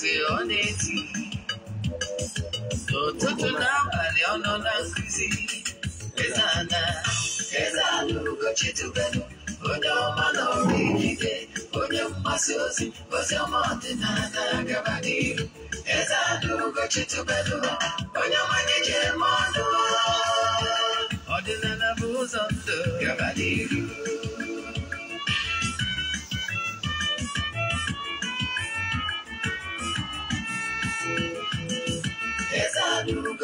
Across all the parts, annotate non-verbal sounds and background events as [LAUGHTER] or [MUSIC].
asị ọ na-eti n'ụtụtụ na abalị ọ nọ na nkuzi Ezeana Ezeana Ugochi tubelu onye ọma na ọrụ ikike onye mgbasa ozi ozi ọma ọdịnala gaba n'ihu Ezeana Ugochi tubelu onye ọmanye ji eme ọnụ ọdịnala bụ ụzọ ndụ gaba n'ihu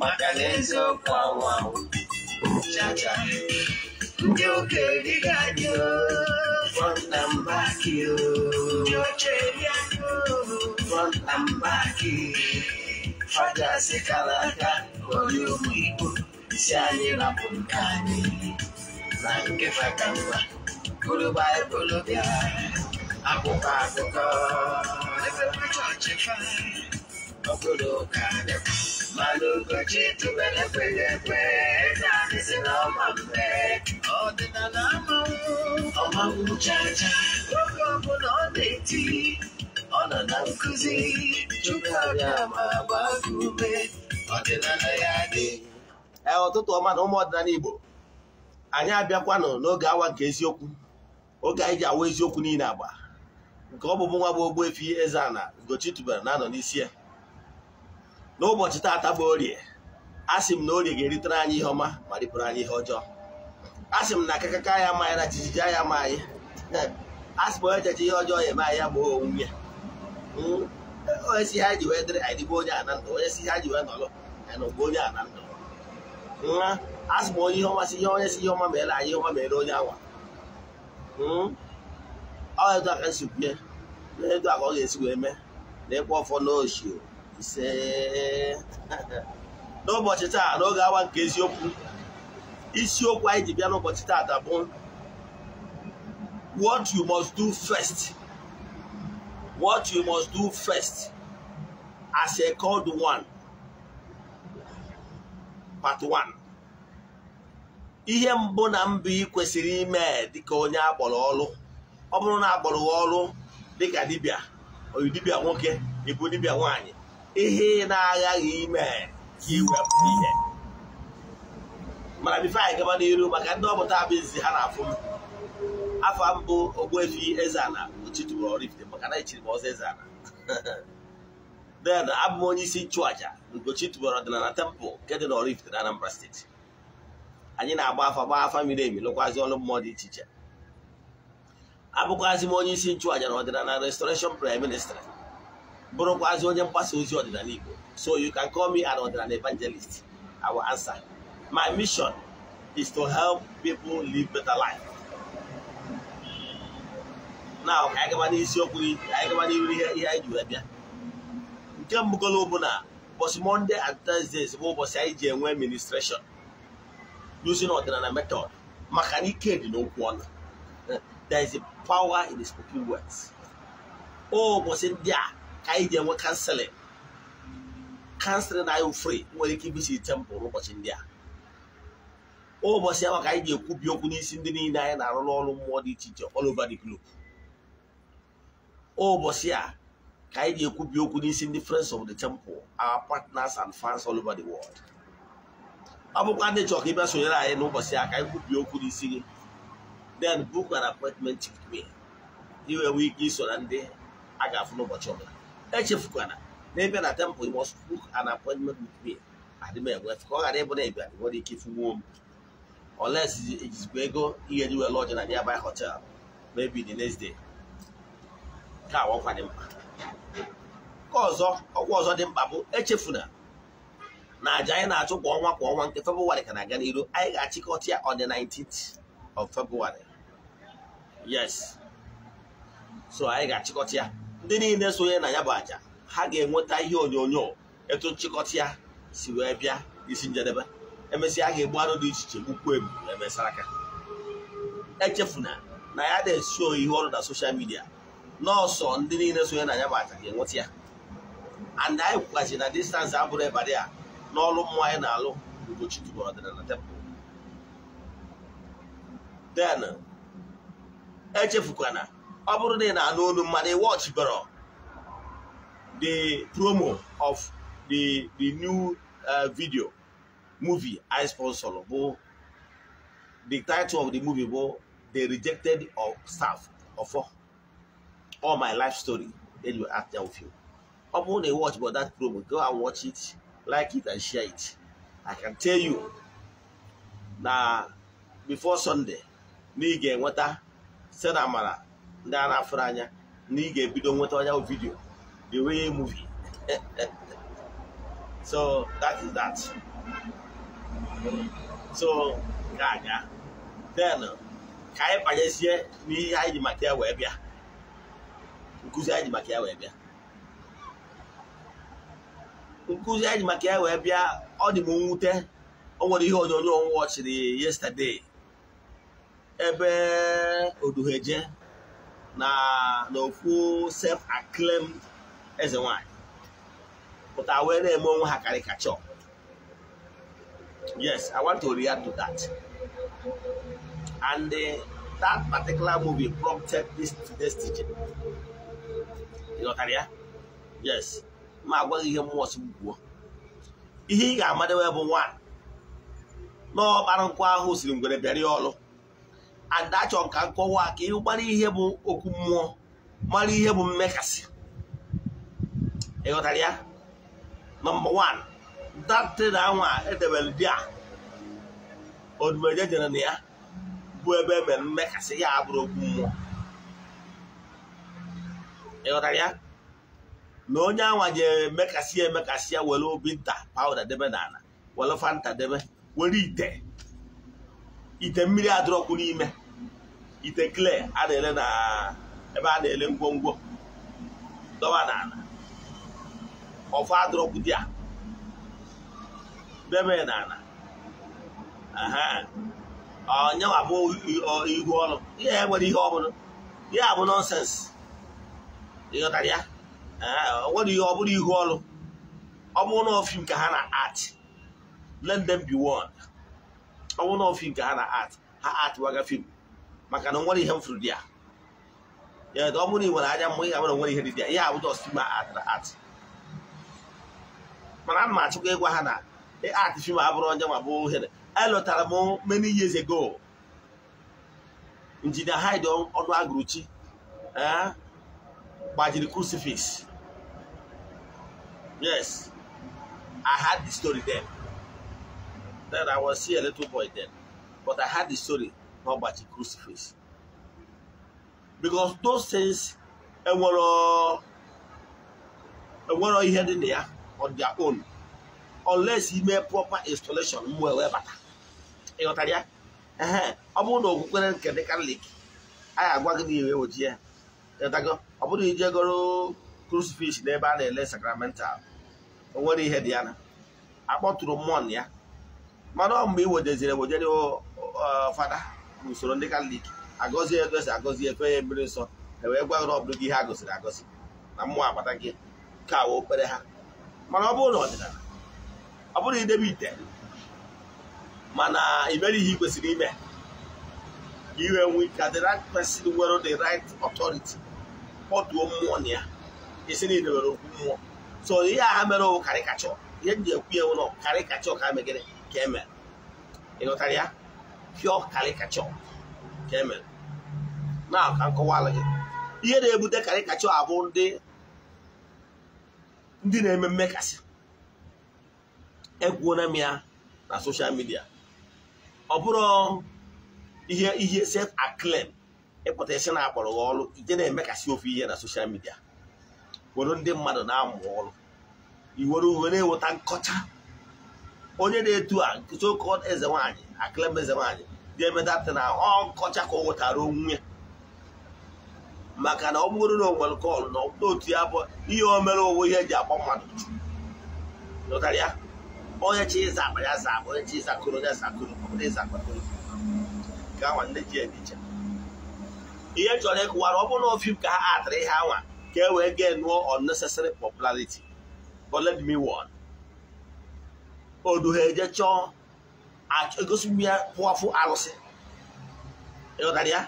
makan'eziokwu anwụ chacha ndị okenye ga-adị from Tambaki ndị oche ya from Tambaki fada si kara aka onye ụmụ Igbo si anyị rapụ nke anyị na nkefa ka mma gụrụ baịbụl bịa akwụkwọ akụkọ ebe chọọchị ọbụlụkadị mana ụbọchị tubere kwere ekwe naanị si na ọma mgbe ọdịnala amanwụ ọmanwụ chacha oge ọbụla ọ na-eti ọ nọ na nkụzi chukwuabịa ma gbagụ ume ọdịnala ya dị ụtụtụ e, ọma na ụmụ ọdịnala Igbo anyị abịakwanụ n'oge awa nke eziokwu oge anyị ji awa eziokwu niile agba nke ọ bụbụ nwa bụ efi Eze-Ana Ugochi tubelu na-anọ n'isi ya n'ụbọchị taata bụ orie sị m na orie ga-eritere anyị ihe ọma ma ripụrụ anyị ihe ọjọọ A sị m na akakaka ya ma anyị na jijiji ya ma anyị asị [LAUGHS] m onye jeje ihe ọjọọ ya eme anyị ya gboo onwunwe ya hmm, onye si ihe anyị ji wee dịrị anyị dịbụ onye a ndụ onye si ihe anyị ji wee nọrọ anyị nọgbu onye hmm, a na ndụ nwa asị m onye ihe ọma si ihe onye si ihe ọma mere anyị ọma mere onye anwa hmm, ọ edu aka nsikwunye na edu aka ọ ga-esi wee mee na ịkwa ọfọ n'oshi ise [LAUGHS] n'ụbọchị taa n'oge awa nke eziokwu isiokwu anyị ji bịa n'ụbọchị taa bụ what you must do first what you must do first as a called one part one ihe mbụ na mbụ ị kwesịrị ime dịka onye akpọrọ ọrụ ọ bụrụ na akpọrọ ọrụ dịka dibia oyi dibia nwoke ibu dibia nwaanyị ihe ị na-aghaghị ime ka iwepụ ihe mana bifo anyị gaba n'iru maka ndị ọmụta abụzi ha na-afụ m afọ mbụ Ogbuefi Eze-Ana maka na echiri m ọzọ Eze-Ana [LAUGHS] then abụ m onye isi nchụaja Ugochi tubara ọdịnala tempụl nke dị na Oraifite na Anambra steeti anyị na-agba afa gbaa afa miri emi lụkwazị ọrụ mmụọ dị iche iche abụkwazị m onye isi nchụaja na ọdịnala restoration prime ministry bụrụkwazị onye mgbasa ozi ọdịnala Igbo so you can call me an ọdịnala evangelist I will answer my mission is to help people live better life now ka anyị gaba n'isiokwu anyị gaba n'ihu ihe ihe anyị ji wee bịa nke mbụgolo bụ na ụbọchị Monday and Thursdays bụ ụbọchị anyị ji enwe ministration. using ọdịnala method maka na ike dị n'okwu ọnụ there is a power in the spoken words O ụbọchị ndị a ka anyị ga-enwe kanselịn kanselịn na anyị free nwere ike ibisi tempụl ụbọchị ndị a ụbọchị ahụ ka anyị ga-ekwubi okwu n'isi ndị niile anyị na-arụ n'ọrụ mmụọ dị iche iche all over the ụbọchị a ka anyị ga-ekwubi okwu n'isi ndị friends of the temple our partners and fans all over the world ọ bụkwa ndị chọrọ ka ị bịa sonyere anyị n'ụbọchị a ka anyị kwubie okwu n'isi gị then book an appointment with me iwe nwee ike iso na ndị a ga-afụ n'ụbọchị ọbụla echefukwana na ịbịa na temple you must book an appointment with me adị m enwe ka ọ ghara ịbụ na ịbịa nwere ike ifunwuo m unless ejizikwa e ego ihe dị wee lodge na nearby hotel maybe the next day ka awọkwa dị mkpa nke ọzọ ọgwụ ọzọ dị mkpa bụ echefuna na aja anyị na-achụ kwa ọnwa kwa ọnwa nke Febụwarị ka na-aga n'iru anyị ga-achịkọta ya on the 19th of Febụwarị yes so anyị ga-achịkọta ya ndị niile sonye na ya bụ aja ha ga-enweta ihe onyonyo etu nchịkọta ya si wee bịa isi njedebe emesịa ha ga-egbu arụ dị iche iche gbukwu ebu emesara aka echefuna na ya dị eso ihe ọrụ na soshal midia nọọsọ ndị niile sonye na ya bụ aja ga-enweta ya and anyị kwukwaziri na distansị abụrụ ịbadị a n'ọrụ mmụọ anyị na-alụ mgbochi tubụrụ ọdịnala tebụl then echefukwana ọ bụrụ na ị na-anụ olu mmadụ ị wọchiboro the promo of the the new uh, video movie I sponsor bụ the title of the movie bụ the rejected of staff of all my life story then you act down with ọ bụrụ na watch but that promo go and watch it like it and share it I can tell you na before Sunday na ị ga-enweta sena amara ndị a na-afụrụ anya na ị ga-ebido nweta ọnya vidio the way movie [LAUGHS] so that is that so ka aga then ka anyị banyezie n'ihe anyị ji maka ya wee bịa nkụzi anyị ji maka ya wee bịa nkụzi anyị ji maka ya wee bịa ọ dị m nwute o nwere ihe onyonyo m ọchịrị yesterday ebe oduheje na n'ofu self acclaimed eze nwanyị pụta wee na-eme onwe ha caricature yes i want to react to that and uh, that particular movie prompted this this teaching ịghọtara ya yes ma agwaghị ihe mmụọ si gwuo ihe ị ga-amadewe bụ nwa n'ọkpara nkwa ahụ siri ngwere bịara ọlụ and achọrọ ka nkọwa ka ị gbara ihe bụ okwu mmụọ mara ihe bụ mmekasị ịghọtara ya nọmba wan datịn anwa edebere di a odumeje jere na ya bụ ebe e mmekasị ya abụrụ okwu mmụọ ịghọtara ya na onye anwa je emekasị ya emekasị ya were obi oh, nta pawuda debe n'ala were fanta debe were ite ite mmiri adọrọkwu n'ime ite klee a na-ele na ebe a na-ele ngwongwo dọba n'ala ọfọ adụrọpụdị a debe n'ala ọnyanwa bụ ihu ọrụ ihe ya nwere ihe ọbụla ihe a bụ nọnsensị ịghọtara ya nwere ihe ọbụla ihu ọrụ ọ bụrụ ka ha na art let be one ọ ka ha na art ha art waga film. maka na o nwere ihe m furu di ya ya ọ bụrụ na nwere anya mgbe ị ga-abụrụ nwere ihe dị di a, ihe abụjọ sima atara atụ mana m achịkwa ịgwa ha na e, art fim abụrụ onye ma bụ ohere elụtara m many years ago injinia Hyde ọnụ agụrụchi gbajiri crucifix yes I had the story then then I was see a little boy then but I had the story n'ọgbachi crucifix because those things enwero ihe dị na ya on their own unless ime proper installation mgbe wee bata ịghọtara ya ọ bụrụ na okwukwere nke dị katọlik ga agwa gị na iwe ya ịghọtago ọ bụrụ iji goro crucifix n'ebe a na-ele sakramental onwere ihe dị ya na akpọtụrụ mmụọ ya mana ọ mgbe i wedeziri ewejere fada usoro ndị katọlik agọzie ego esi agọzi efe ya mmiri nsọ e wee gwagoro ọbụrụ gị ihe a gosiri agọzi na mmụọ agbata gị ka wee okpere ha mana ọ bụrụ na ọdịnala ọ bụrụ idebe ite mana imere ihe ị kwesịrị ime iwe nwe ka the right person nwere the right authority kpọtuo mmụọ na ya isi na idebere okwu mmụọ so ihe a ha mere karịkachọ ihe m ji ekwu ya nwụrụ karịkachọ ka ha ka e mere ị nụtara ya pure caricature ka e na ka nkọwala ihe na-ebute caricature abụ ndị na-eme mmekasị ekwuona m ya na soshal midia ọ bụrụ ihe ihe self acclaim ịpụta isi na-akpọrọ gị ọrụ ije na-emekasị ofe ihe na soshal midia were ndị mmadụ na-amụ ọrụ iwere uwe na-eweta nkọcha onye na-etu a so-called eze nwanyị akịlem eze nwaanyị dị emedapụta na ọ nkọcha ka ọ nwetara onwe maka na ọ bụrụ na o kọl na otu ya bụ ihe o mere onwe ihe eji agba mmadụ ụtara ya onye chi ịza akpa ya za onye chi ịza ya zakụrụ ọbụla ịza ndị ji ediche ihe chọrọ ịkụwara ọ bụrụ na ofim ka ha atara ihe anwa ka e wee gee nụọ popularity odu ha eje chọọ egosi ya pụafụ arụsị ịghọtara e ya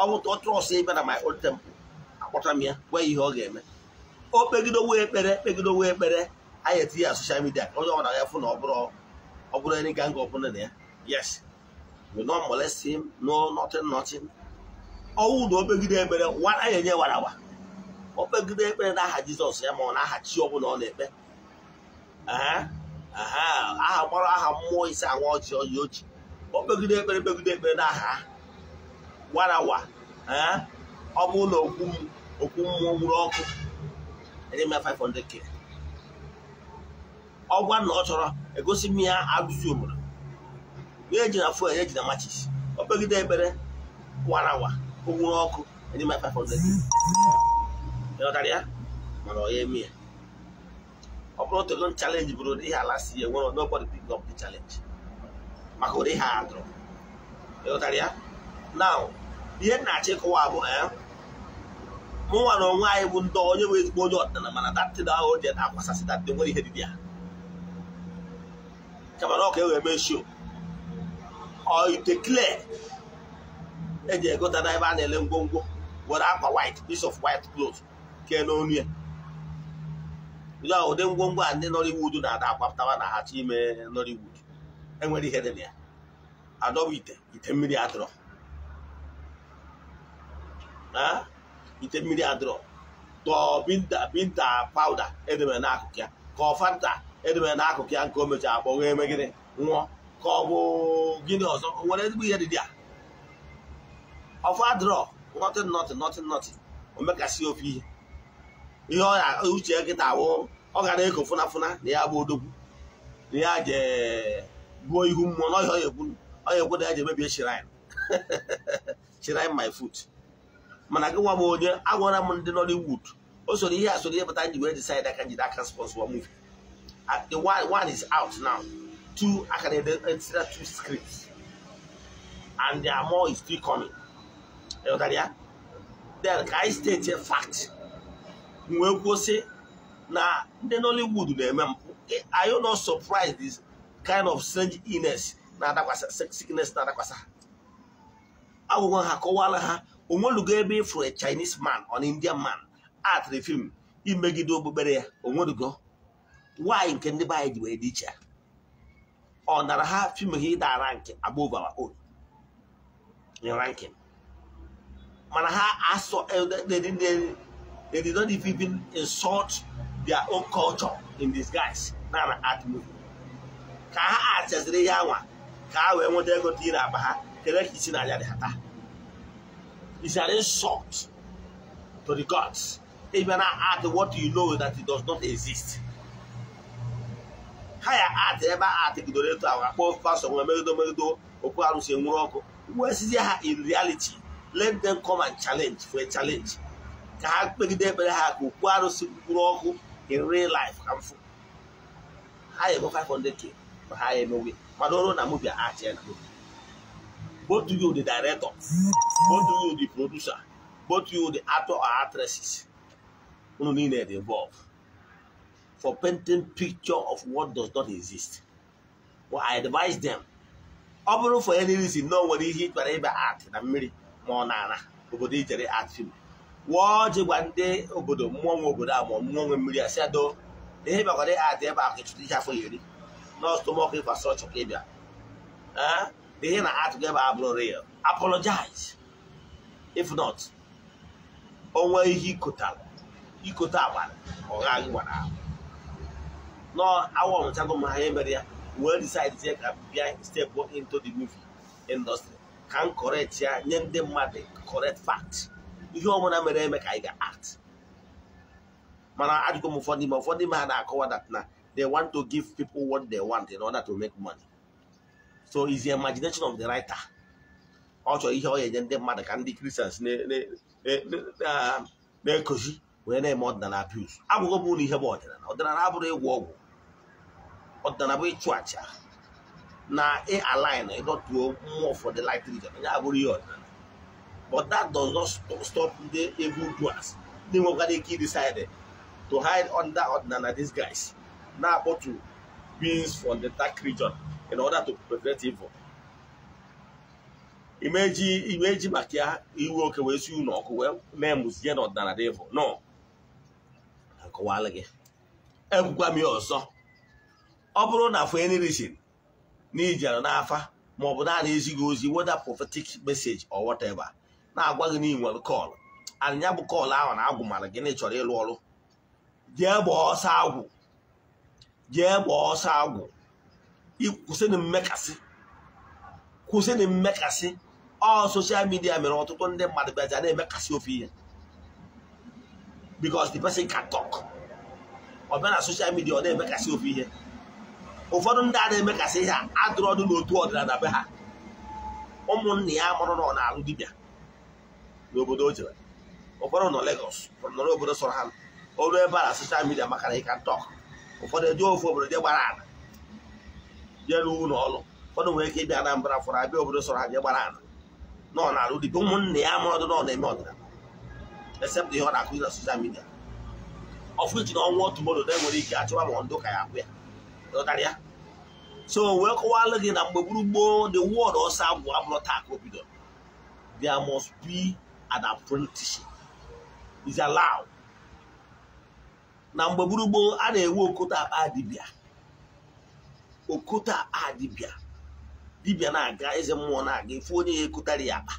ọ bụ trọs ebe na my old temple akpọtara m ya gwa ihe ọ ga-eme o kpegidowe ekpere kpegidowe ekpere anyị etinye ya soshal midia onye ọ bụla ya fụ na ọ bụrụ ọ bụrụ any gang ọ bụla na ya yes we no molest him no nothing nothing ọnwụ na okpegide ekpere wara ya enye warawa okpegide ekpere na aha jizọs ya ma ọ na aha chi ọ ọ na-ekpe aha gbara aha mmụọ isi anwa ọchị ọyị ochi o kpegide ekpere kpegide ekpere na aha warawa eh? ọ bụ na okwu mmụọ gburu ọkụ enye 500k ọ gwa na ọ chọrọ egosi m ya agụzi obodo wee na fuel ya ji na machis o kpegide ekpere warawa o gburu ọkụ enye 500k ya mana ọ ya eme ya ọ bụrụ otogo chalenji bụrụ ụdị ihe ala si nwere nobody pick up the challenge maka ụdị ha adụrụ ịghọtara ya ihe na-achọ ịkọwa bụ eh, mụnwa na onwe anyị bụ ndị onye bụ ezigbo onye ọdịnala mana datịn ahụ ji na-akwasasị datịn nwere ihe dịbịa kama na ọka e wee mee show ite eji egota ebe a na-ele ngwongwo were akwa white piece of white cloth kee n'onu ya bụla ụdị ngwongwo a ndị Nollywood na-ada akwapụtawa na ha achọ ime Nollywood enwere ihe dị na ya adọba ite ite mmiri adịrọ ite mmiri adịrọ tọọ binta binta pawuda edemere n'akụkụ ya ka ọ fanta edemere n'akụkụ ya nke o mechara akpọ nwee megide nwụọ ka ọ bụ gịnị ọzọ o nwere ezigbo ihe dị dị a ọfọ adịrọ nọtịn nọtịn nọtịn nọtịn o ofe ihe ihe ọ ya uche nkịta awụ ọ gara eko fụnafụna na ya bụ odogwu na ya jebuo ihu mmụọ na ọhịa ọya ekwu na ya ji emebie shrine my foot mana gị nwa m onye agwara m ndị Nollywood o soro ihe a soro ihe pụta nji wee decide aka njide aka sponsor one movie the one is out now two akara edetira e two scripts and their more is still coming ya then ka anyị fact wee kwuo na ndị Nollywood na-eme mpụ eh, are you not surprised this kind of strange illness na-adakwasa sickness na-adakwasa ha agwụgwọ ha kọwala ha onwelugo ebe ịfụrụ a Chinese man or an Indian man atịrị fim imegide okpukpere ya onwelugo nwaanyị nke ndị be anyị ji wee ọ nara ha fim ha ịda rank above our own ranking mana ha asọ eh, their own culture in disguise na na art movie ka ha achaziri ihe anwa ka ha wee nweta ego dị n'akpa ha kere ka isi n'anya dị ha is an insult to the gods if you na art what you know that it does not exist ha ya art ebe art gidoro eto ahụ akpọ pasọ nwe megido megido okwu arụsị enwuru ọkụ wesizie ha in reality let them come and challenge for a challenge ka ha kpegide ekpere ha ka okwu arụsị mkpụrụ ọkụ in real life harmful ha ego 500k ma ha emewe mana ọrụ na movie achị na movie both you the director both you the producer both you the actor or actresses unu niile dey involved for painting picture of what does not exist but i advise them ọ bụrụ for any reason na o nwere ihe ị art na mmiri ma ọ na ana obodo ijere art film wụọ ọjị gwa ndị obodo mmụọ nwe obodo a ma mmụọ nwe mmiri a asị ado na ihe bịakwara adị ebe ahụ ịchụta ihe afọ iri ah, na ọstụmọkụ infrastrọchọ ka ịbịa na ihe na atụghị ebe abụrụ rịa, apologize if not onwe ihe ikota agbara ọha gị gwara ahụ nọ awa ọmụchago m ha ihe mere ya wee decide ka bịa step into the movie industry ka m correct ya nye ndị mmadụ correct fact ihe ọmụna mere eme ka anyị ga-act mana ajụkwa m ụfọdụ ime ụfọdụ ime ha na-akọwa that na they want to give people what they want in order to make money so is the imagination of the writer ọ chọrọ ihe ọ ga-enye ndị mmadụ ka ndị kristians na-ekozi wee na-eme ọdịnala abuse agwụgwọ m ụlọ ihe bụ ọdịnala ọdịnala abụrụ ịgwọ ọgwụ ọdịnala bụ ịchụ aja na ịalain ịdọtuo mmụọ the light region onye abụrụ ihe ọdịnala but that does not stop the evil doers ndị nwekwara ike decide to hide under ọdịnala these guys na-akpọtu beings from the dark region in order to prevent evil imeji imeji maka ya iwe oke wee si unu ọkụ wee mee mụzie na ọdịnala dị evil no akọwala gị ekwukwa m ya ọzọ ọ bụrụ na for any reason na ijere n'afa maọbụ na a na-ezighị ozi weda prophetic message or whatever na-agwa gị na ị nwere anya bụ kọlụ ahụ na agwụ mara gịnị chọrọ ịlụ ọrụ jee gbaa ọsọ agwụ jee gbaa ọsọ agwụ kwụsịnụ mmekasị kwụsịnụ mmekasị ọ soshal midia mere ọtụtụ ndị mmadụ bịaja na-emekasị ofe ihe because the person can talk ọ bịa na soshal midia ọ na-emekasị ofe ihe ụfọdụ ndị a na-emekasị ihe a adụrụ ọdụ n'otu ọdịnala be ha ụmụnna ya mụrụ na ọ na-alụ dibịa n'obodo o jere ụfọdụ nọ Lagos nọrọ obodo sọrọ ha ọrụ ebe a na soshal midia maka na ị ntọk ụfọdụ ejee ofu obodo je gbara ala jee ruo ụlọ ọrụ ụfọdụ nwere ike ịbịa Anambra fọrọ abịa obodo sọrọ ha je gbara ala nọ n'alụ dịka ụmụnne ya ma ọdụ nọ na-eme ọdịnala except ihe ọ na-akụzi na soshal midia ọfụ ji na ọnwụ otu modo na enwere ike achọwa ma ndụ ka ya abụ ya ya so wee kọwalụ gị na mgbe gburu gboo the world ọsọ abụ abụrụ taa ka o bidoro there must be an apprenticeship is allowed na mgbe gburugburu a na-enwe okota akpa adibia okota akpa dibia na-aga eze mmụọ na-aga ifu onye ya ekotara ya akpa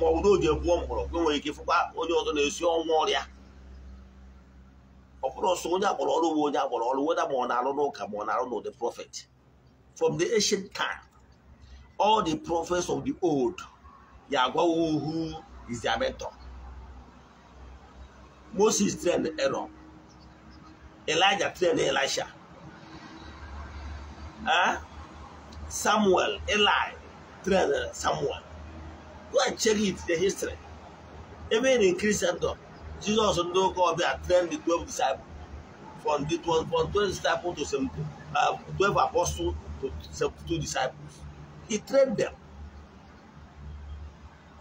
ma ọ bụ na o ji egwuo mgbọrọgwụ enwere ike ịfụkwa onye ọzọ na-esi ọnwa ọrịa ọ bụrụ ọsọ onye agbọrọ ọrụ bụ onye agbọrọ ọrụ weda ma ọ na-arụ n'ụka ma ọ na-arụ n'ụdị prọfet from the asian time all the prophets of the old, Yahweh who is their mentor. Moses trained Aaron. Elijah trained Elisha. Huh? Samuel, Eli trained Samuel. Go and check it, the history. Even in Christendom, Jesus and Obia trained the 12 disciples. From, the, from 12 disciples to uh, 12 apostles to 72 disciples. he train them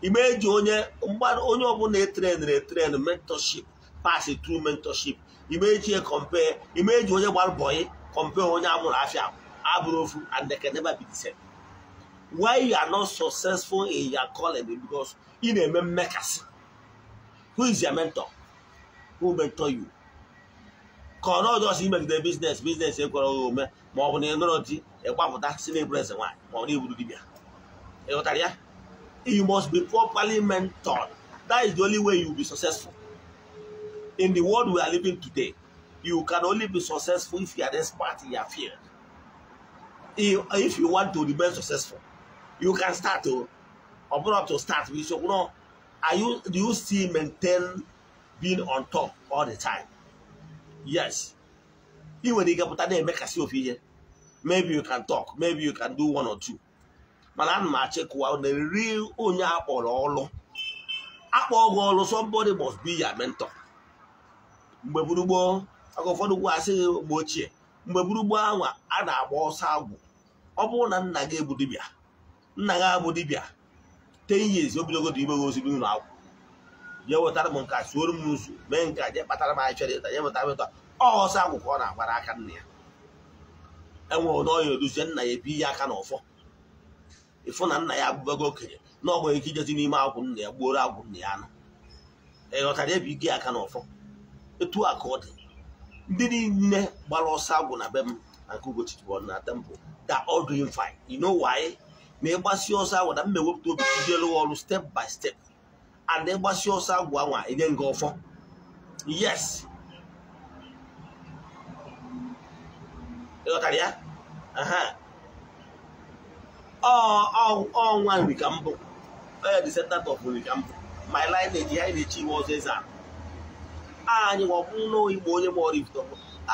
igbe eji onye mgbada onye ọbụla e etren e mentorship pass true mentorship Imejie compare Imeji onye gbara bọyị compare onye amụrụ afia abụrụ ofu and they can never be the same why you are not successful in your calling because ị na-eme mmekasị who is your mentor who mentor you ka ọ nọ just imegide business business ekwere ome ma ọ bụ na ịnọrọ di ịgbapụta si n'eburu eze nwaanyị ma ọ na-eburu dibịa ịghọtara ya you must be properly mentored that is the only way you will be successful in the world we are living today you can only be successful if you are this expert in your field if you want to remain successful you can start to ọ bụrụ to start with so no are you do you still maintain being on top all the time yes. ị nwere ike na-eme k'asị ofe ihe maybe you can talk maybe you can do one or two mana ana m achịkụwa na nri onye akpọrọ ọlụ akpọ gị ọlụ somebody must be your mentor mgbe gburugbo aka gwa mgbe ochie mgbe gburugbo ahụ a na-agba ọsọ agwụ ọ bụrụ na nna gị bụ dibịa nna gị abụ dibịa ten years obidogo dị ime gị ozigbo ụlọ akwụ jee wetara m nka suoro m nzu mee nka jee kpatara m ahịchọrọ ịta jee wetara m ịta ọsọ agwụkwọ ọ na-agbara aka nna ya enwere na ọya oduzie nna ya ebi ihe aka na ọfọ ịfụ na nna ya abụbago okenye na ọ nwere ike ijezi n'ime agwụ nna ya gbuoro agwụ nna ya anụ ịghọtara ebe ike aka na ọfọ etu a ka ọ dị ndị niile gbara ọsọ agwụ na be m na nke Ugochi na temple da all doing fine you ma ịgbasi ọsọ agwụ na mma ewepụta obi idelu ọrụ step by step and ịgbasi ọsọ agwụ anwa enye nga ọfọ yes ịghọtara ya ọnwa nri ka mbụ onye descendant of nri ka mbụ my lineage anyị na-echi iwe ọzọ eze anyị nwabụ n'igbo onye mụọrọ ifitọ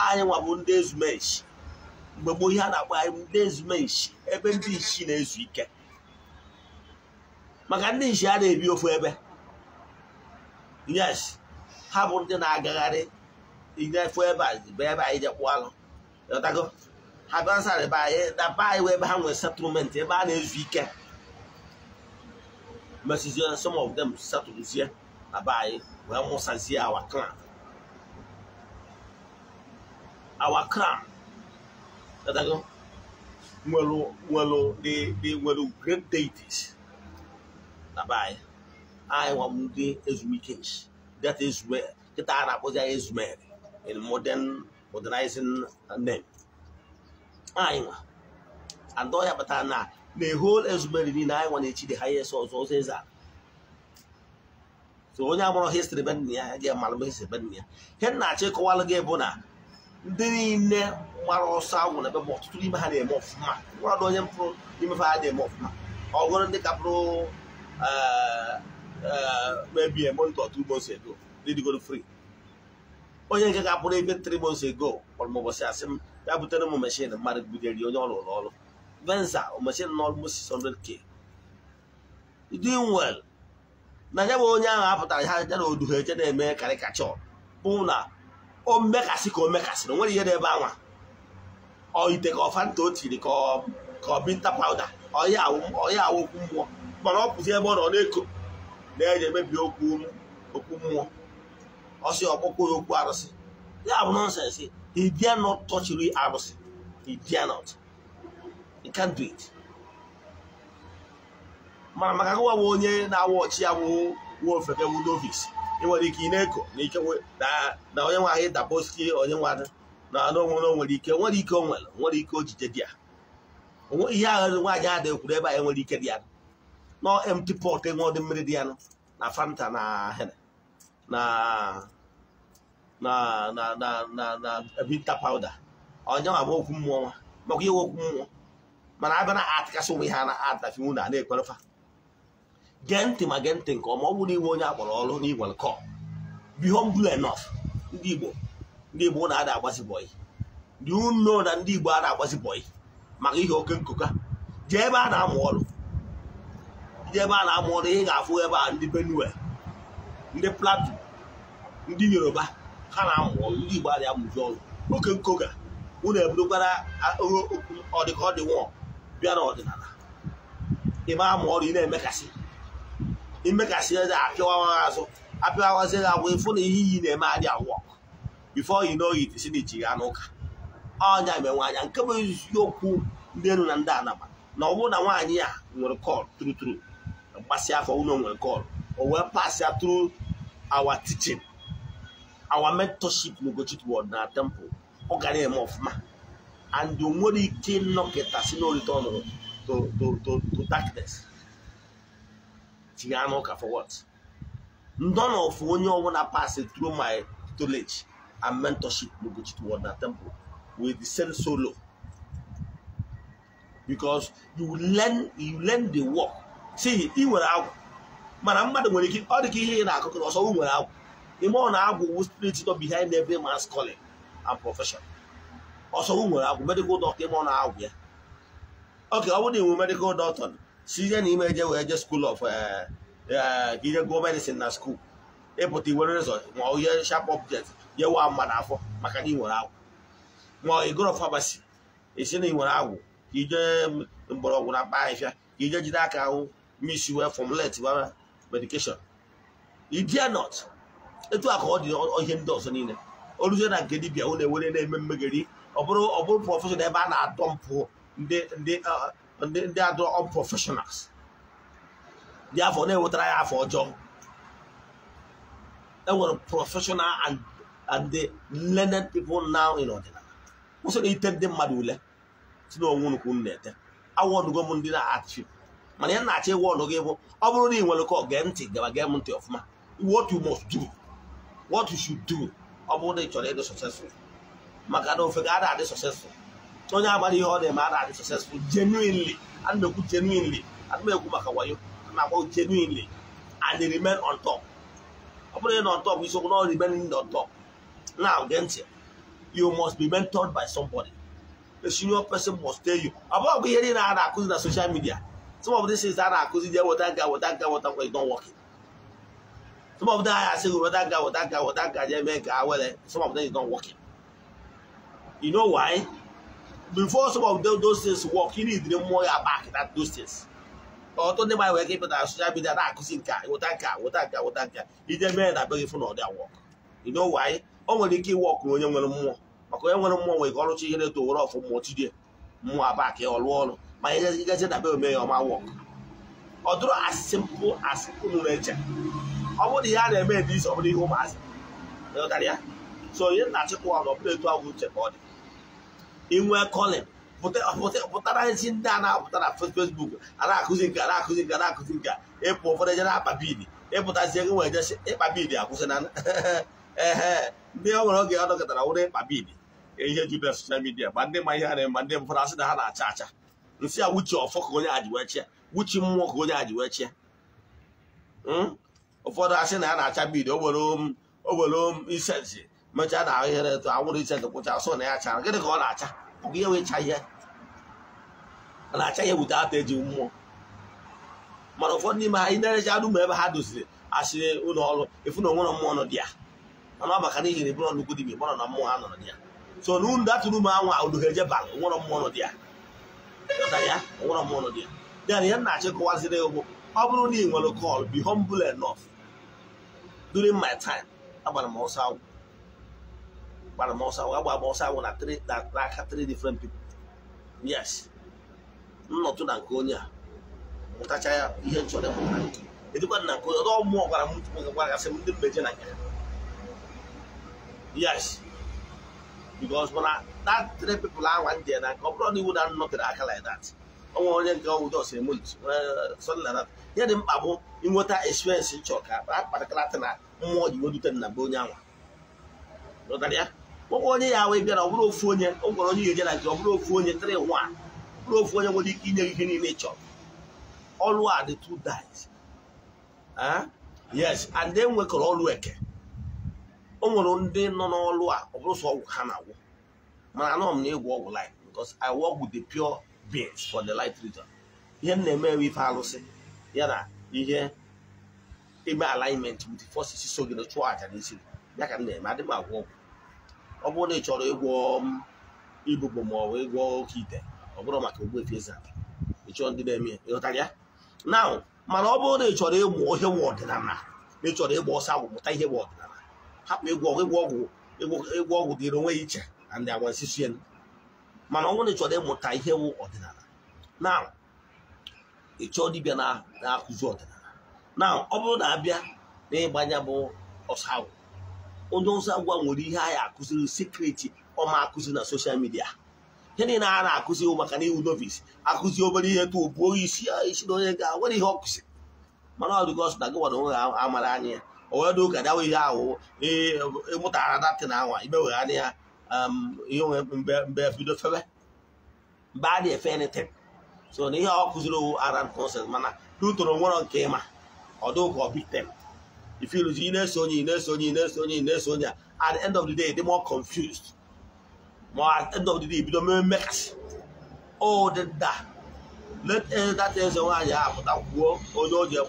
anyị nwabụ ndị ezumechi mgbe gboo ihe a na-akpọ anyị ndị ezumechi ebe ndị ishi na-ezu ike maka ndị nshi a na-ebi ofu ebe yes ha bụ ndị na-agagharị inefu ebe a bụ ebe anyị jekpụ alụ Yo tago, haban sa le baye, da baye wey bahan wey satoumente, baye le zviken. Mesi zyen, some of dem satoumen zyen, da baye, wey amonsan zyen awa klan. Awa klan. Yo tago, mwen lo, mwen lo, de mwen lo great deities, da baye, ay e waman de ezumikens. Dat ezumek, kita anapoz ya ezumek, en modern, modernizing name anyị nwa and ọhịa pụtara na na whole ezumeri niile anyị nwa na-echi the highest ọzọ ọzọ eze a so onye agbụrụ histrị be nna ya ga-amalụ histrị be nna ya ihe nna-achọ ịkọwalụ gị bụ na ndị niile gbara ọsọ agwụ na ebe ma ọtụtụ n'ime ha na-eme ọfụma mmadụ onye mpụrụ imefe ha na-eme ọfụma ọgụrụ ndị kapụrụ mebie monto ọtụ ugbo si edo ridigoro frii. onye nke ga-apụrụ ebe tri months ago kpọrọ m ụbọchị asị m ya butere m mashin mmadụ butere onye ọrụ rụrụ ọrụ venza mashin na almost 600k doing na nya bụ onye ahụ apụtara ha ya na oduhe eche na-eme karịkachọ bụ na o mekasị ka o mekasịrị nwere ihe n'ebe anwa ọ ite ka ọfanta o tiri ka ọ binta pawuda ọya awụ okwu mmụọ mana ọ pụzi ebe ọ nọ na-eko na-eji emebi okwu mmụọ ọsị ọkpụkpọ ya okwu arụsị ya bụ nọnsensị he dare not touch real arụsị he dare not he can't do it mana maka gụwa bụ onye na-awụ ọchị ya bụ nwa ofeke bụ ị nwere ike ị na-eko na ike na onye nwe ahụ dabosi onye nwe na anụ nwere onwere ike nwere ike o nwere nwere ike ojije dị ya onwe ihe ahụ nwaanyị adịghị kwuru ebe anyị e nwere ike dị ya nọ empty pot enwe ọdị mmiri dị ya na fanta na hene na na na na na binta pawuda onye nwa bụ okwu mmụọ nwa maka ihe okwu mmụọ mana abịa na atịkasị onwe ha na atafi na na-ekwerefa gee ntị ma gee ntị nke ọma ọ bụrụ onye akpọrọ ọrụ n'igwere kọ be ndị igbo ndị igbo na-ada agbazi bọyị dị na ndị igbo a na-agbazi bọyị maka ihe oke nkụka jee ebe a na-amụ ọrụ ndị ebe a na-amụ ọrụ ị ga-afụ ebe a ndị benue ndị platu ndị yoruba ha na-amụ ndị Igbo adịghị amụzi ọzọ n'oke nkoga unu ebudokwara ọdịka ọ dị nwụọ bịa n'ọdịnala ịma amụ ọrụ ị na-emekasị imekasị ede apịawa azụ apịawazi gị agwa ịfụ na ihe iyi na-eme adị awọ bifo yi n'oyi tisi na ya n'ụka ọnya menwe anya nke bụ eziokwu ndị elu na ndị anaba na ọ bụrụ na nwaanyị a nwere kọlụ turuturu mgbasị afọ ụlọ nwere kọlụ o wee pasịa tru awa tichin our mentorship n'Ugochukwu word na temple ọ gara eme ọfụma and o nwere ike ịnọkịta si no return nụrụ to darkness tinye anụ ụka for what ndị ọ nọfụ onye ọbụla pass through my tutelage and mentorship n'Ugochukwu word na temple will descend solo because you learn you learn the work see ị nwere agwụ mana mmadụ nwere ike ọ dị ka ihe ị na-akụkọ ọsọ nwere agwụ ime ọ na-agwụwu spirit nọ behind every man's calling and profession ọsọ nwere agwụ medical doctor ime na-agwụ ya oke ọ bụrụ na inwe medikal doctor si ihe na ime eje wee je school of eh, eh, ihe gụọ medicine na school ịpụta iwere resort ma ọ ihe sharp object yewa mma n'afọ maka na ị nwere agwụ ma ọ ịgụrụ esi na ị agwụ ka ije mgbọrọgwụ na mkpa ahịhịa ka ije jide aka ahụ misi wee formulate medication idia not etu a ka ọ dị ihe ndị ọzọ niile o ruzie na nke dibia unu ewere na-eme mmegeri ọ bụrụ ọ bụrụ prọfeshọn ebe a na-adọmpụ ndị ndị ndị adọ unprofessionals dị afọ na enwetara ya afọ ọjọọ enwere prọfeshọnal and and the learned people now in ọdịnala kwụsị na ite ndị mmadụ ule si na onwe nnukwu na-ete awọnugo m ndị na-achị mana ya na-achọ ịwọnụ gị bụ ọ bụrụ na ị nwere kọ gee ntị gaba gee m ntị ọfụma what you must do what you should do ọ bụrụ na ị chọrọ ịdị successful maka na ofe ga-ada adị successful onye agbara ihe ọ na-eme ada adị successful genuinely ana m ekwu genuinely ana maka wayo ana m agwa genuinely and remain on ọ bụrụ na nọ top isiokwu na ọ remain on Na now gee ntị you must be mentored by somebody a senior person must tell you ọ bụghị ihe niile a na-akụzi na social midia, some of these things a na-akụzi je weta nka weta nka weta nkwa is not Some of them are saying, well, oh, that guy, well, oh, that guy, well, oh, that guy, yeah, man, guy, well, eh. some of them is not working. You know why? Before some of them, those things work, you need to know more about that, those things. Or don't they mind where people that social media that cousin guy, what that guy, what that guy, what that guy. It's work. You know why? Only Maka onye nwere mmụọ nwere ka ọrụ chi ihe na-eto were ọfụ mmụọ lụọ ọrụ ome ya ọma as ọ bụrụ ihe a na-eme dị iche ọ bụrụ ihe ụmụazị so onye na-achịkwa nọ pụta etu ahụ uche ka ọ dị inwe kọlin pụtara ezi ndị a na-apụta na fesbuk a na-akụzi nke a akụzi nke a na-akụzi nke ịpụ ụfọdụ eje na-akpa bid ịpụtazie gị nwere jeshi ịkpa bid akwụsịna ee [LAUGHS] ndị ọ nwere oge ọ dọkọtara wụrụ ịkpa bidi ihe jupụtara soshal midia ma ndị ma ihe ha na-eme ma ndị mfọdụ asị na ha na-acha acha nsị a wuchi ọfọ ka onye ajiwechia wuchi mmụọ ka onye ajiwechia hmm? ụfọdụ asị na ya na-acha bid owere um, um, isensi mechaa na ahụhere etu anwụrụ isensi kwụcha asụ na ya chara gịnị ka ọ na-acha ọ bụ ihe wee enwecha ihe na-acha ihe bute ata eji mmụọ mana ụfọdụ n'ime ha ị na anụ ebe ha doziri asịrị ụlọ ọrụ efu na onwere mmụọ nọ dị ya mana ọ maka n'ihi na ịbụrụ nnukwu dibịa ịbụrụ na mmụọ ha nọ dị ya so na unu datụrụ m anwa unu ha ejebal onwere mmụọ nọ dị ya ya onwere mmụọ nọ dị ya ya na ihe na-achịkọwaziri ụgbụ ọ bụrụ na ị nwere kọl be humble enough during my time agbara m ọsọ agwụ agbara m ọsọ agwụ ọsọ agwụ na n'aka different pipo yes nnọtụ na nke a mụtacha ya ihe nchọrọ mụtara edikwa na nke onye ọdọ mmụọ gwara m ndị mbeje na nke yes because mana that three ndị na ọ bụrụ na iwu na nnọtere aka like that onwe onye nke ọnwụ dos emulit sọdị na ihe dị mkpa bụ inweta experience nchọ na mmụọ igbo dute na be onye anwa kpọkwa onye ya wee bịara ọ bụrụ ofu onye ọ gwara onye ihe eje na nke ọ bụrụ ofu onye tịrị nwa ọ bụrụ ofu onye nwere ike inye ihe niile ị chọrọ ọlụ a dị two dice ah? yes and e nwekọrọ ọlụ eke o nwere ndị nọ n'ọlụ a ọ bụrụ sọ ọgwụ ha na-agwụ mana anọ m na ịgwọ ọgwụ life because I work with the pure beings for the light region ihe m na-eme ife alụsị ya na ihe eme alignment with forces so gị na chụọ aja n'isi ya ka m na-eme adị m agwọ ọgwụ ọ bụrụ na ị chọrọ ịgwọ um, ibụbụ ma ịgwọ oke ite ọ bụrụ maka ogbu efe eze aka ị ndị na-eme ya ịghọtara ya na mana ọ bụrụ na ị chọrọ ịmụ ihe ọdịnala ị chọrọ ịgba ọsọ agwụ mụta ihe ọdịnala hapụ ịgwọ ịgwọ ọgwụ ịgwọ ọgwụ onwe ya iche na ndị ịmụta ihe wụ ọdịnala na ị chọọ na-akụzi ọdịnala na ọ bụrụ na abịa na ịgbanya bụ ọsọ agwụ onye agwa nwere ihe ya akụziri sekreti ọma akụzi na soshal midia ihe niile a na-akụzi maka na iwu novis akụzi obere ihe tụ buo isi ah, isi na onye ga nwere ihe ọ kụziri mana ọ dịgo ọsọ na gị nwere onwe amara anya ya o wee dị ụka dawa ihe ahụ ịmụtara datin anwa imewegharị ya um, ihe onwe mgbe bido febe mgbe a na-efe ntin so na ihe ọ kụziri owu ara nonsense mana n'utoro nwere nke ịma although God beat them. If you lose, you know, Sony, you know, Sony, you know, Sony, you know, Sony, at the end of the day, they're more confused. More at the end of the day, bido mere mmet. Oh, the that. Let uh, that is the one you have, that war, or oh, no, your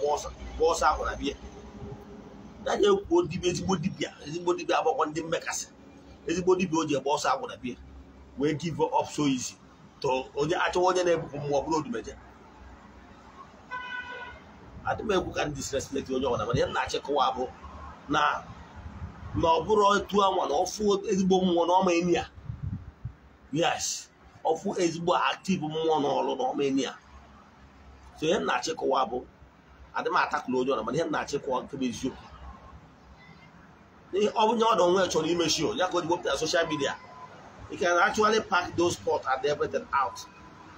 ezigbo dibia, ezigbo dibia agbakwọ ndị mmekasị Ezigbo dibia, oji boss, ọsọ want to be. We give up so easy. To onye achọ onye na-ebupụ mmụọ bụrụ odumeje. adị m ekwu ka ndị disrespect onye ọbụla mana ya na-achịkọwa abụ na na ọ bụrụ etu anwa na ọfụ ezigbo mmụọ na ọma enyi ya yes ọfụ ezigbo aktiv mmụọ na n'ọrụ na ọma enyi ya so ihe na-achịkọwa bụ adị m atakụla onye ọbụla mana ihe na-achịkọwa nke eziokwu ọ bụ nye ọdụ onwe chọrọ imechi ya ka o ji wepụta soshal midia you can actually pack those spots and everything out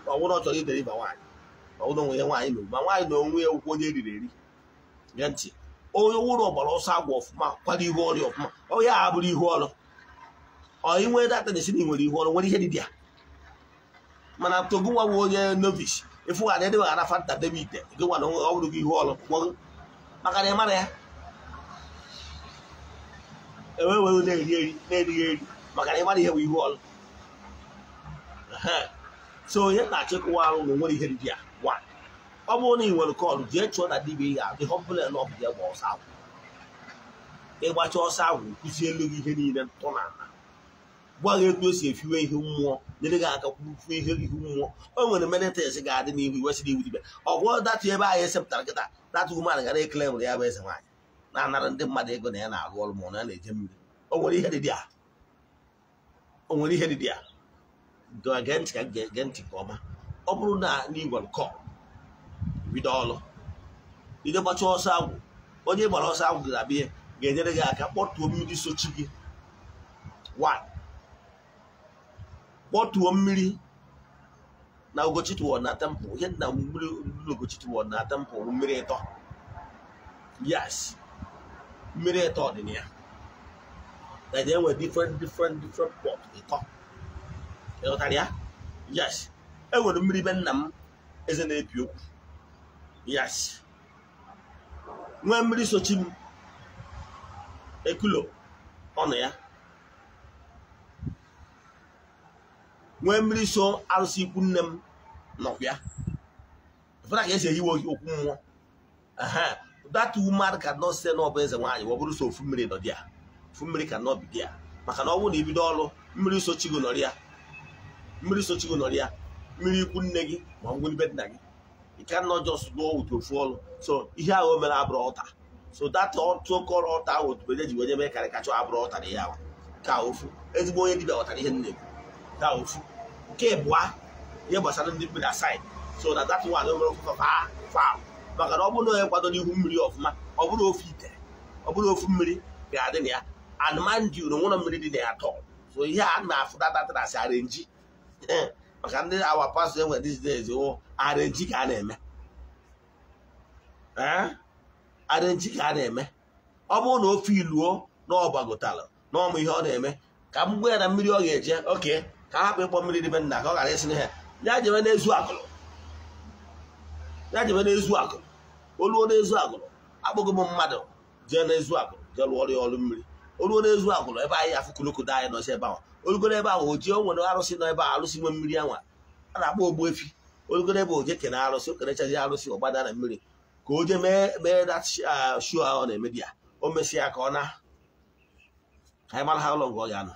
ọ bụrụ ọ chọrọ ideliver nwaanyị ụlọ onwe ya nwaanyị na ma nwaanyị na onwe ya ụkwụ onye eriri eri ya ntị onye wụrụ ọgbara ọsọ agwọ ọfụma kwado ihu ọrịa ọfụma onye a bụrụ ihu ọrụ ọyị nwere data na-esi na nwere ihu ọrụ nwere ihe dị ya mana togo nwa bụ onye novice ịfụ ga adịghị ara fanta debe ite gị nwa na ọ bụrụ gị ihu ọrụ gwọgụ maka na ị mara ya enwewe na-eri eri na-erighị eri maka na ị mara ihe bụ ihu ọrụ so onye na-achịkwa arụ na nwere ihe dị ya ọ bụrụ na ị nwere kọlụ jee chụọ na dibịa ya dị họpụlen ọf dị gba ọsọ agwụ ịgbacha ọsọ agwụ kụzie elu gị ihe niile ntọ na ana gwa gị etu esi efiwe ihe mmụọ nyere gị aka kwufuo ihe ihu mmụọ o nwere menetes ga-adị n'ihu iwesịrị iwu dibịa ọ bụrụ datụ ebe anyị esepụtara kịta datụ human gara ekele nwere ya bụ eze nwaanyị na-anara ndị mmadụ ego na ya na-arụ ọrụ ma ọ na-eje mmiri o nwere ihe dịdị a o nwere ihe dịdị a ga ntị ka m ga-ege ntị nke ọma ọ bụrụ na n'igwe nkọ bido ọlụ idekpacha ọsọ agwụ onye gbara ọsọ agwụ ga-abịa ga-enyere gị aka kpọtuo mmiri sochi gị kpọtuo mmiri na ogochitụọ na tempụ ihe na mmiri ogochitụọ na tempụ mmiri ịtọ yes mmiri ịtọ dị na enwe different different different pot ịtọ ịghọtara ya yes enwere mmiri be nna m eze na-epi okwu yes nwee mmiri sochi m ekulo ọnụ ya nwee mmiri so arụsị ikwu nne m nọkwa ya fụra ka esi ehiwe okwu mmụọ that woman cannot say na ọ bụ eze nwaanyị ọ bụrụ so ofu mmiri nọ ya ofu mmiri ka nọ bido ya maka na ọ bụrụ na ibido ọrụ mmiri sochigo nọrịa mmiri sochigo nọrịa. ya mmiri ikwu nne gị ma ngwuribe nna gị ike ka nọ just gbuo ụtụ ofu ọlụ so ihe ahụ o mere abụrụ ọta so that ọtụkọrọ ọta ahụ otubeje ji wenye mee karịkacha abụrụ ọta na ya ka ofu ezigbo onye dibịa ghọtara ihe nne gị ka ofu nke bụa ihe gbasara ndị mmiri asaid so na dat one o mere ofu fam maka na ọ bụrụ onye kwado n'ihu mmiri ọfụma ọ bụrụ ofu ite ọ bụrụ ofu mmiri ga-adị na ya anụmanụ uru mmiri dị na ya tọọ so ihe a na-afụ datatara asị arenji maka ndị awa pastọ enwe these days wụ arenji ka a na-eme arenji ka a na-eme ọ bụrụ na ofe iluo na ọgbagotala na ọmụ ihe ọ na-eme ka m gwa ya na mmiri ọ ga-eje oke ka a hapụ ịkpọ mmiri dịbe nna ka ọ ghara isi na ha ya jebe n'ezu akụrụ ya jebe n'ezu akụrụ oluo n'ezu akụrụ akpọgo m mmadụ jee n'ezu akụrụ jee lụọrọ ya ọrụ mmiri oluo n'ezu akụrụ ebe anyị afụ kulukudo anyị nọzi ebe ahụ olugoro ebe ahụ oji o nwere arụsị nọ ebe a arụsị nwe mmiri anwa a na-akpọ efi olugoro ebe oje kene arụsị o kerechazi arụsị ọgbada na mmiri ka o je mee mee dat uh, shuo ahụ na-emebi ya o mesịa ka ọ na anyị mara ha ụlọ nga ọ ga-anọ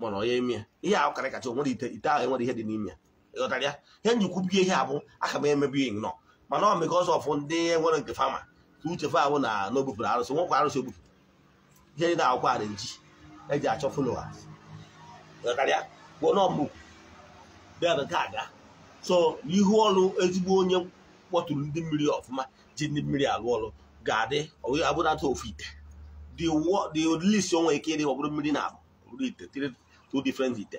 mana onye ime ihe ahụ karị kacha nwere ite ite ahụ enwere ihe dị n'ime ịghọtara ya ihe njikwubi ihe a bụ aka m emebi ya nọ mana ọ mekọ ọzọ ọfụ ndị nwere nke fama ka uche ahụ na n'obupụrụ arụsị nwekwa arụsị obupu ihe dị na akwụkwọ a na-eji eji achọ followers ada so ihu ọrụ ezigbo onye kpọtụrụ ndị mmiri ọfụma ji ndị mmiri alụ ọrụ ga-adị abụrata ofu ite dị list onwe ike ịdị ọ bụrụ mmiri na-abụ bụrụ ite two different ite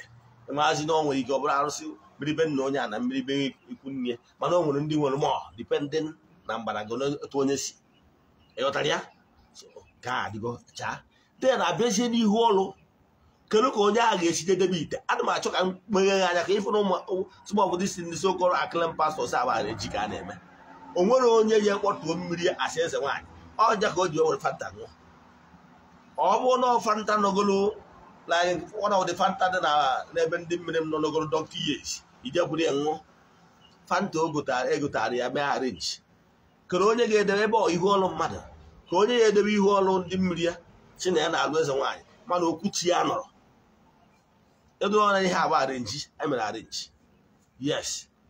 maazi na onwere ike ọ bụrụ arụsị mmiri be nna onye a na mmiri be ikwu nne mana o nwere ndị nwere mọọ dipendent na mgbada gị onye si ịghọtara ya ga-adịgo chaa ten abịazie n'ihu ọlụ kedu ka onye agha ga-esite debe ite ana m achọ ka m meghe anya ka ịfụ na ụmụ obodo isi ndị sokoro akịlịm pastọs agbara echi ka a na-eme o nwere onye ya kpọtuo mmiri asị eze nwaanyị ọja ka o ji were fanta ṅụọ ọ bụ na fanta nọgolo one of fanta dị n'ebe ndị mmiri m nọ nọgolo dọkịta yes ijekwuru ya nwụọ fanta egotara e ya mee arenji kere onye ga-edebe ebe ihu ọlụ mmadụ ka onye ya edebe ihu ọlụ ndị mmiri ya chi na ya na-alụ eze nwaanyị mana okwu chi ya nọrọ edoọra ihe agba arenji emere arenji yes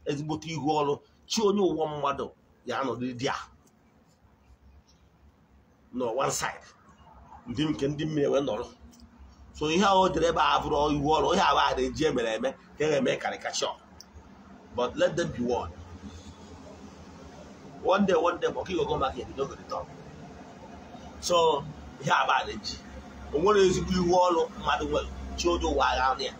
ezigbote ihu ọrụ chi onye ụwa mmadụ ya anọrịrị di a nọ one side ndị nke ndị mmiri wee nọrọ so ihe ahụ o jere ebe abụrụ ihu ọrụ ihe agba arenji emere eme ka e eme karịkachọ but let them be one one day one day ọka igogo maka ebido gịrịta so ihe abalị ji o nwere ezigbo iwu ọrụ mmadụ nwere chi onye ụwa agha ya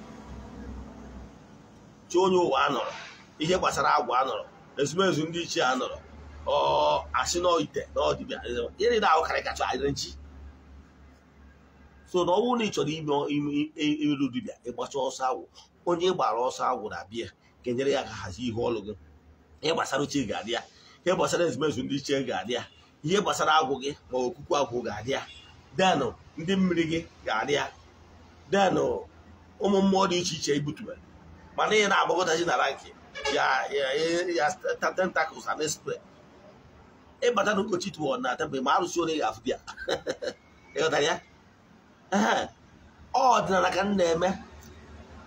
chi onye ụwa anọrọ ihe gbasara agwa anọrọ ezumezu ndị ichie a nọrọ anọrọ asị n'ite na ọdịbịa ịrị na-ahụ karịkacha adịrị nchi so na ọnwụ na ị chọrọ imeru dibịa ịgbacha ọsọ agwụ onye gbara ọsọ agwụ na bịa ga-enyere ya ka hazie ihe ọrụ gị ihe gbasara uche ga-adị ya ihe gbasara ezumezu ndị ichie ga-adị ya ihe gbasara agwụ gị ma okuku agwụ ga-adị ya denụ ndị mmiri gị ga-adị ya denụ ụmụ mmụọ dị iche iche ibutubere mana ị na-agbakọtachi na nke ya ya tentacles and spread ịbata na okochi tụọ na tebụl ma arụsị onye ga-afụ bịa ịghọtara ya [LAUGHS] ọ ọdịnala ka m na-eme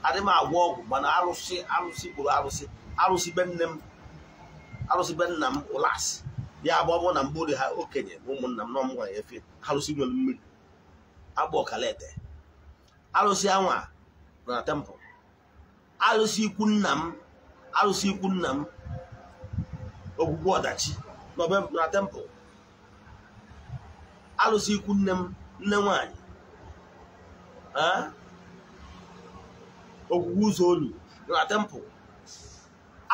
adị m agwọ ọgwụ mana arụsị arụsị gburu arụsị arụsị be nne m arụsị be nna m ụlasị ya agba bụ na mgbori ha okenye bụ ụmụnna m nọ m gwara efe alụsị nwere mmiri agba ọkala ete alụsị anwa nọ na tempụl alụsị ikwu nna m alụsị ikwu nna m ogwugwu ọdachi na tempụl alụsị ikwu nne m nne nwanyị ogwugwu ụzọ olu nọ na tempụl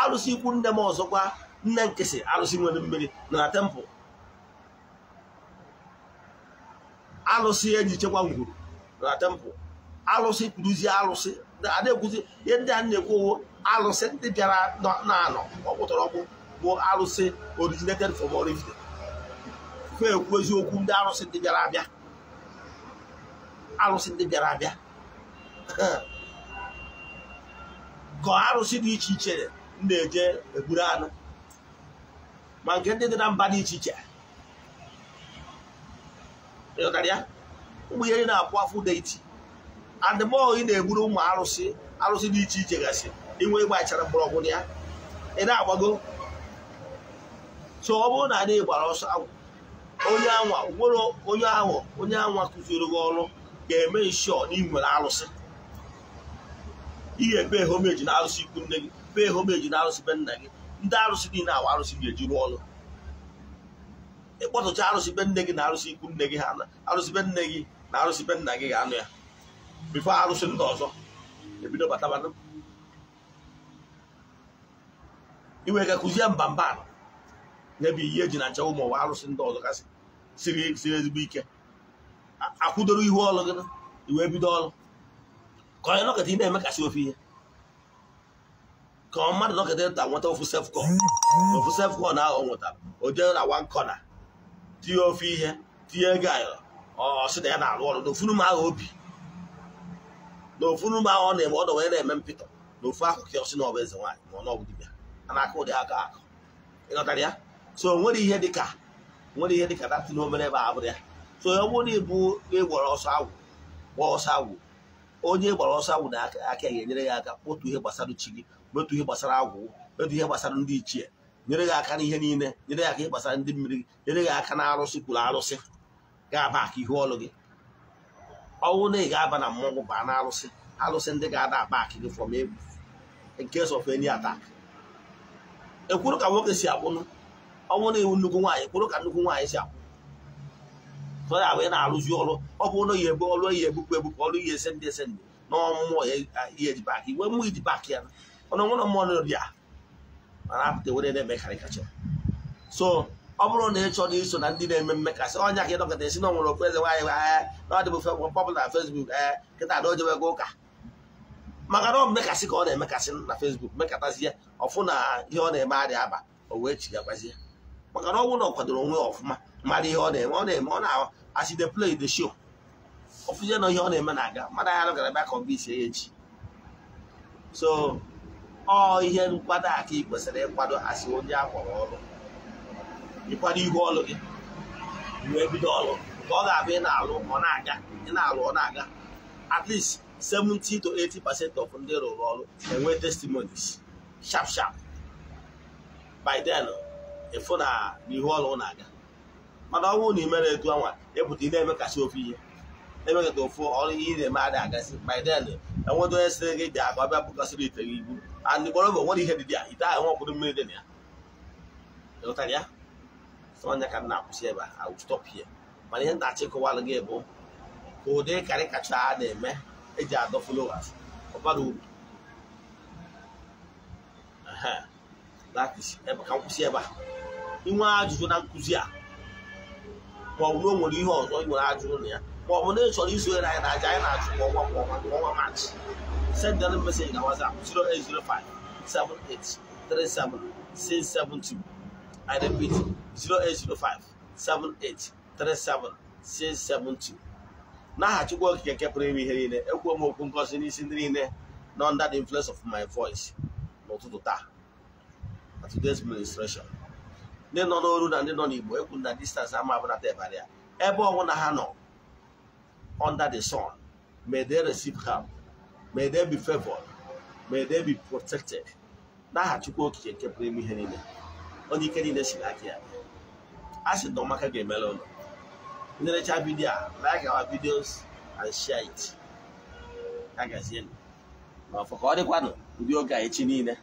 alụsị ikwu nne m ọzọkwa nne nkịsị alụsị nwere mmiri nọ na tempụl arụsị eji chekwa ngwuru na tempụl arụsị kpuruzie arụsị adịkwuzi ihe ndị a na-ekwu alụsị ndị bịara na-anọ ọkpụtara ọkpụ bụ arụsị originated from origin ekwu eziokwu ndị arụsị ndị bịara abịa arụsị ndị bịara abịa [LAUGHS] gọọ arụsị dị iche iche na-eje egburu anụ ma nke ndị dị na mba dị iche iche ịghọtara ya ụmụ ihe na-akwụ afụ deiti adịmọ ị na-egburu ụmụ arụsị arụsị dị iche iche gasị inwe ịgba achara mgbọrọgwụ ya ị na-agbago so ọ bụrụ na anyị gbara ọsọ onye anwa nwere onye ahụ onye anwa kụziri gị ọrụ ga-eme nshọ na ị nwere arụsị ihe be homeji na arụsị ikwu nne gị be homeji na arụsị be nna gị ndị arụsị niile awa arụsị ga-eji rụọ ọrụ ịkpọtụcha arụsị be nne gị na arụsị ikwu nne gị ha arụsị be nne gị na arụsị be nna gị ga-anụ ya bifo arụsị ndị ọzọ ebido batabanụ iwe ga kụzie mbamba n'ebe ihe eji na nchewa ụmụ ụwa arụsị ndị ọzọ kasị siri ezigbo ike akwụdoro ihu ọrụ gị iwe bido ọrụ ka onye nọkọta ị na-emekasị ofe ihe ka ọ mmadụ nọkọta eto nweta ofu sefkọn mm-hmm. ofu sefkọn ahụ ọ nwetara o jere na wan kọna tinye ofe ihe tinye ego ayọrọ ọsị na ya na-arụ ọrụ n'ofunu m ahụ obi n'ofunu m ahụ ọ na-eme ọdọ wee na-eme mpịtọ n'ofu ahụ ka ọsị na ọbụ eze nwaanyị ma ọ na ọbụ dibịa a na-akụ ụdị aka akụ ịghọtara ya so nwere ihe dịka nwere ihe dịka datị na obere ebe abụrụ ya so ọ bụrụ na ịbụ ịgwara ọsọ awụ gba ọsọ awụ onye e gbara ọsọ awụ na aka ya enyere ya aka otu ihe gbasara chi gị metụ ihe gbasara agwụ metụ ihe gbasara ndị ichie nyere gị aka n'ihe niile nyere ya aka ihe gbasara ndị mmiri nyere gị aka na arụsị kwuru arụsị ga-aba aka ihu ọlụ gị ọnwụ na ị ga-aba na mmọnwụ baa na arụsị arụsị ndị ga-ada aba aka gị from egwu in case of ekwuru ka nwoke si akwụnụ ọnwụ na iwu nnukwu nwaanyị kwuru ka nnukwu nwaanyị si akwụ ọ ya na-arụzi ọrụ ọ bụ na ya ebu ọrụ ya ebupụ ebupụ ọrụ ihe ese ndị ese ndị n'ọmụmụ ya eji bak iwe mmụ iji bak ya ọnụ nwụrụ mmadụ ya mana apụta were na-eme karịkacha so ọ bụrụ na ị chọrọ iso na ndị na-eme mmekasị ọnya ka ị dọkịta esi na nwere okpueze nwaanyị ahịa eh, na ọ dịbụ pọpụl na fesbuk ee eh, kịta ada ojewego ụka maka na ọ mmekasị ka ọ na-emekasị na fesbuk mekatazie ọfụ na ihe ọ na-eme adịghị aba o wee chigakwazie maka na ọ bụrụ na ọ kwadoro onwe ọfụma mmadụ ihe ọ na-eme ọ na-eme ọ na-asị the play the show ọfụzie na ihe ọ na-eme na-aga mmadụ ahịa dọkịta bịa ka ọ bụ isi ya echi so ọ ihe nkwado a ka ị kwesịrị ịkwado asị onye a kpọrọ ọrụ ịkwado ihu ọrụ gị wee bido ọrụ ka ọ ga-abụ ị na-alụ ọ na-aga ị na-alụ ọ na-aga at least 70 to eighty percent of ndị rụrụ ọrụ enwe testimonies sharp sharp by then ịfụ na ihu ọrụ na-aga mana ọ bụrụ na ị mere etu ọnwa ịpụta ị na-eme ofe ihe emekata ụfụ ọrụ ihe na-eme adị agasị by enwedo onye sịrị gị bịa ka ọ bịa bụkọsịrị ite gị ibu and bụ nwere ihe dị ya ite ahụ nwakwụrụ mmiri dị na ya ịghọtara ya sonya ka m na-akwụsị ebe a stop here mana ihe ntachi kụwalụ gị bụ ka ụdị karị kacha a na-eme eji adọ followers ọbara uru ka nkwụsị ebe a inwe ajụjụ na nkụzi a ma ọ bụrụ o nwere ihe ọzọ ị nwere ajụjụ na ya ma ọ bụ na ị chọrọ isonyere anyị na aja anyị na-achụ kwa ọnwa kwa ọnwa kwa ọnwa maachị send them message na WhatsApp 0805 78 37 672 I 0805 78 37 672 n'aha Chukwu Okike nke pụrụ ime ihe niile ekwuo m okwu ngozi n'isi ndị niile na under the influence of my voice n'ụtụtụ taa na today's ministration ndị nọ n'oru na ndị nọ n'Igbo ekwu na distance ama abụnata ebe ya ebe ọnwụ na ha nọ under the sun. May they receive help. May they be favored. May they be protected. n'aha Chukwu okike nke pụrụ ime ihe niile onye ike niile si n'aka ya a sị na ọmaka ga-emere ụlọ ndị vidiyo a like our videos and share it agazienụ n'ọfọ ka ọ dịkwanụ ndị oge a echi niile